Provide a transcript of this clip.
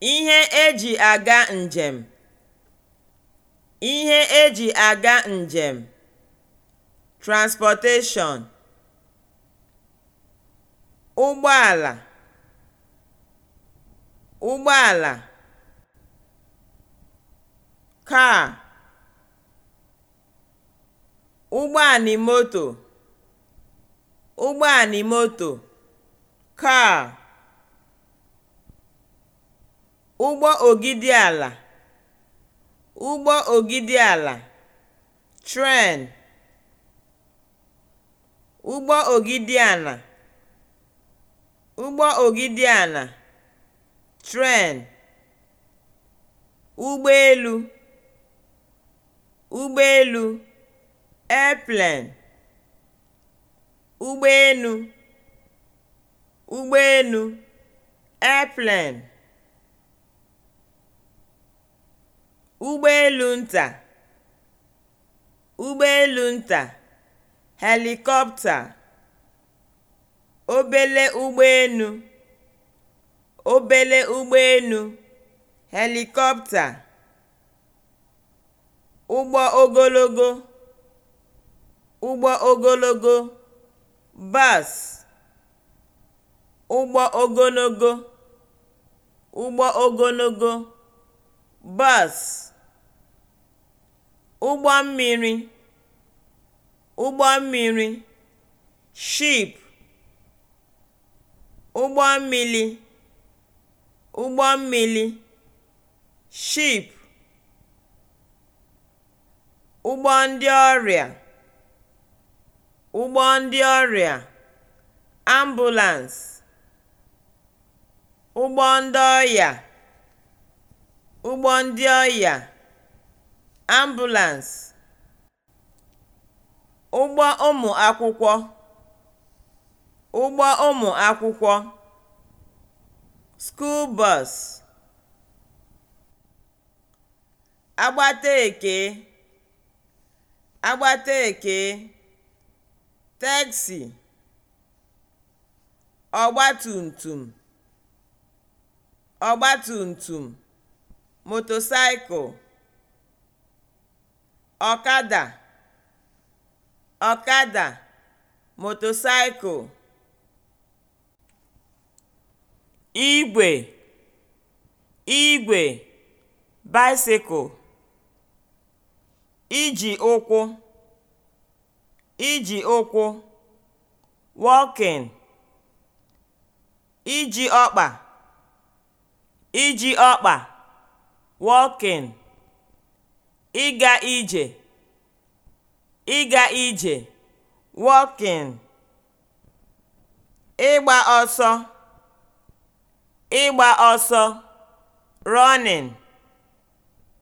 Ihe eji aga njem. Ihe eji aga njem. Transportation ụgbọala, ụgbọala. Car ụgbọanimoto, ụgbọanimoto. Car Ụgbọ ogidi-ala (ụgbọ ogidi-ala), tren, ụgbọ ogidi ala ụgbọ ogidi ala: tren, ụgbọelu, ụgbọelu, airplane, ụgbọenu, ụgbọenu, airplane. ụgbọelu nta ụgbọelu nta helikọpta, obere ụgbọelu obele ụgbọelu helikọpta. ụgbọ ogologo ụgbọ ogologo bas. ụgbọ ogologo ụgbọ ogologo bus ụgbọ mmiri ụgbọ mmiri ship ụgbọ mmili ụgbọ mmili ship ụgbọ ndị ọrịa ụgbọ ndị ọrịa ambulance ụgbọ ndị ọya ụgbọ ndị ọya, ambulans, ụgbọ ụmụ akwụkwọ, ụgbọ ụmụ akwụkwọ, skuul bọs, agbata agbateeke, teksị, ọgbatumtum, ọgbatumtum. motosaịkụ ọkada ọkada motosaịkụ igwe igwe bicycle iji ụkwụ iji ụkwụ walking iji ọkpa iji ọkpa walking, ịga ije, ịga ije walking, ịgba ọsọ, ịgba ọsọ running.